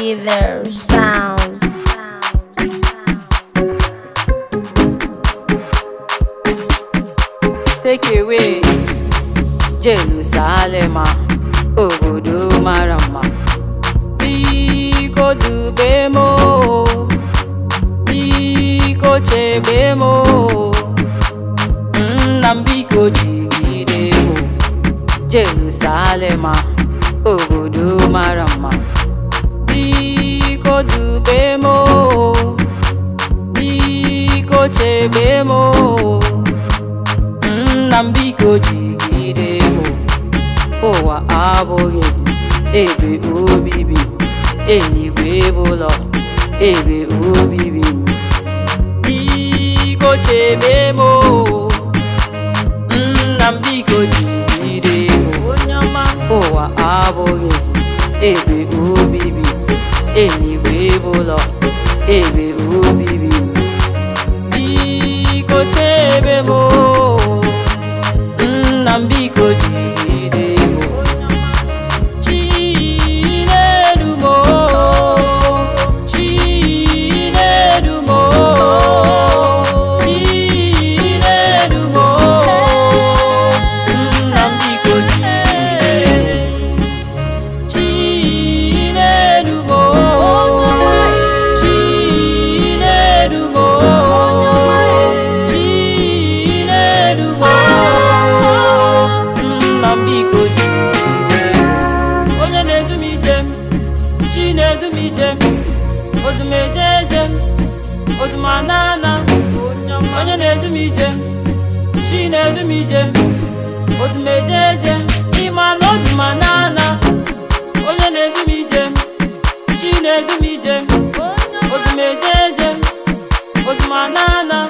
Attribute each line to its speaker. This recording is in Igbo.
Speaker 1: either sound. Take
Speaker 2: away Jerusalem, obodo mara mma. Biko dube m biko chebe m nna m biko Jerusalem, obodo mara mma. ikojikiremo owa abụghị ebe obibi eligwebụlọ ebe obibi ikochebemo nna m biko jikiremo onye ọma ụwa abụghị ebe obibi eligwebụlọ ebe Mozambique, oh, biko onye na-edu m ije chi na-edu m ije m odumeje eje m odumanana onye na-edu m ije chi na-edu m ije m odumeje eje ịma na odumanana onye na-edu m ije chi na-edu m ije m odumeje eje m odumanana